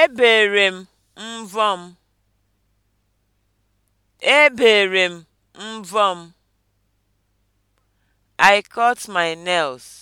Ebere m mbọ m. Ebere m mbọ m. I cut my nails.